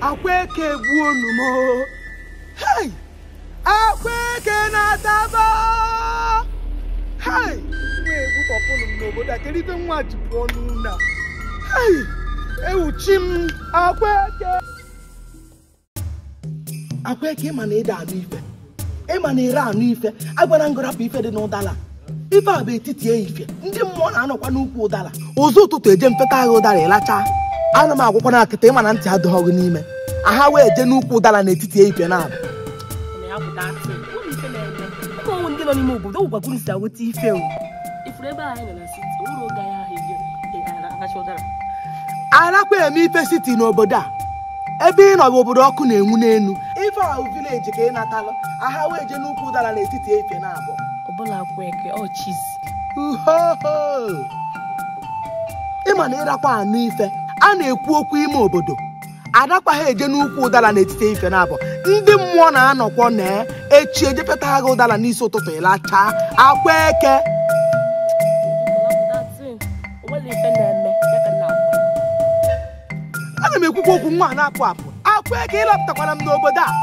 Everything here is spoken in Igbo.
akwa eke gbuo unu m oh. hei akwa eke na-ataba oh. hei egbutọpụnụ m n'obodo a kedu ife nwa ji pụọ n'ụlọ a ewuchi m akwa eke akwa eke ịma na ịda anụ ife ịma na ere anụ ife agwara ngorapụ ife dị n'ụdala ife a bụ etiti ehife ndị mmụọ na-anọkwa n'ukwu ụdara ụzọ ụtụtụ eje mfeta agha ụdara ịlacha ana m agwụkwa na akịta ịma na ntị adịghị ọgụ n'ime aha wee jee n'ukwu ụdara n'etiti ehife na-abụ obodo arakwa eme ife siti n'obodo a ebe ị nọ bụ obodo ọkụ na-enwu n'elu ife ahụ vileji ka ị natalụ aha wee je n'ukwu ụdara n'etiti ehihie na-abụọ ọbụla kweke ọchizi oh, ịma na ịrakwa anụ ife a na-ekwu okwu ime obodo adakwaghị eje n'ukwu ụdara n'etiti ife nabụ ndị mmụọ na-anọkwọ na e, echi ejepụta agha ụdara n'isi ụtụtụ ịlacha akwa eke ana m ekwukwa okwu nwa na-apụ apụ akwa eke ịlapụtakwara m n'obodo a oh.